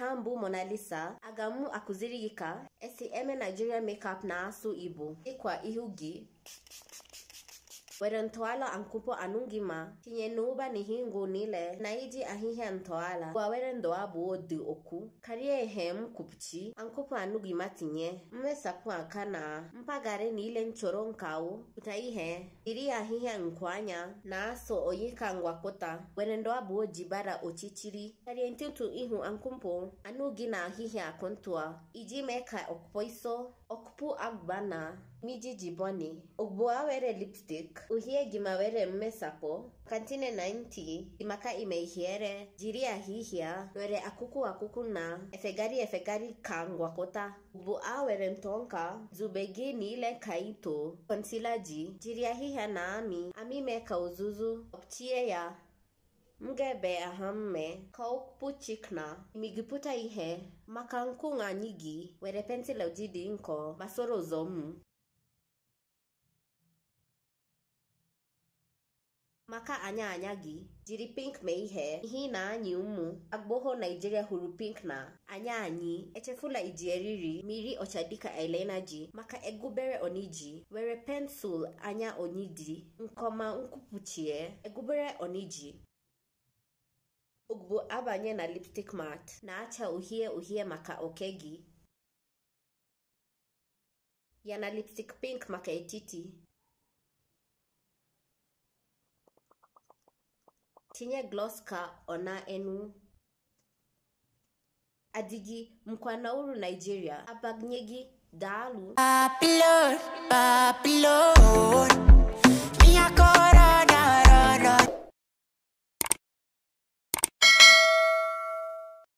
ha mbụ monalisa aga m akụziri gị ka esi eme nigerian makeup na asụ igbo dịkwa ihu gị were ntọala ankupo anụgịma tinye n'ụba n'ihingo niile na iji ahịhịa ntọala gwawere ndụ abụọ dị okwu karịa ihe m kwupchi ankupo anugima tinye mmesapụ aka na mpaghara n'ile nchọrọ nkawo pụta ihe jiri ahịhịa nkụ anya na-asọ oyi ka ngwakọta were ndụ abụọ ji bara ọchịchịrị karịa ntụtụ ihu ankupo anụghị na ahịhịa akụntụa iji mee ka ọkpọ iso ọkpụpụ agba na mijijiboni ugbu a were lipstik uhie ngimawere mmesapo kantine 90 imaka imeihiere jiria hihia were akuku akuku na efegari efegari kangwa kota ubu awere mtonka zubegini ile kaito konsilaji jiria hihia na ami ami meka uzuzu optie ya mgebe ahamme chikna imigiputa ihe makankunga nyigi were pensila ujidi nko masoro zomu maka anya anyagi jiri pink meihe ihe ihe na-anyị ụmụ agboho naijiria hụrụ pink na anya anyị echefula iji eriri mmiri ọcha dịka ji maka egubere oniji were pensụl anya onyidi nkọma nkwupụchie egubere oniji ugbu abanye na lipstick mat na-acha uhie uhie maka oke gị ya na lipstick pink maka etiti tinye gloska ona enu adigi mkwa na nigeria abagnyegi abagnyeghi Papilor, Papilor.